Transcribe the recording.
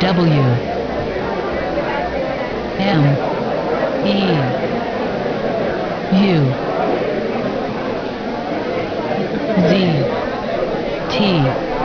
W M E U Z T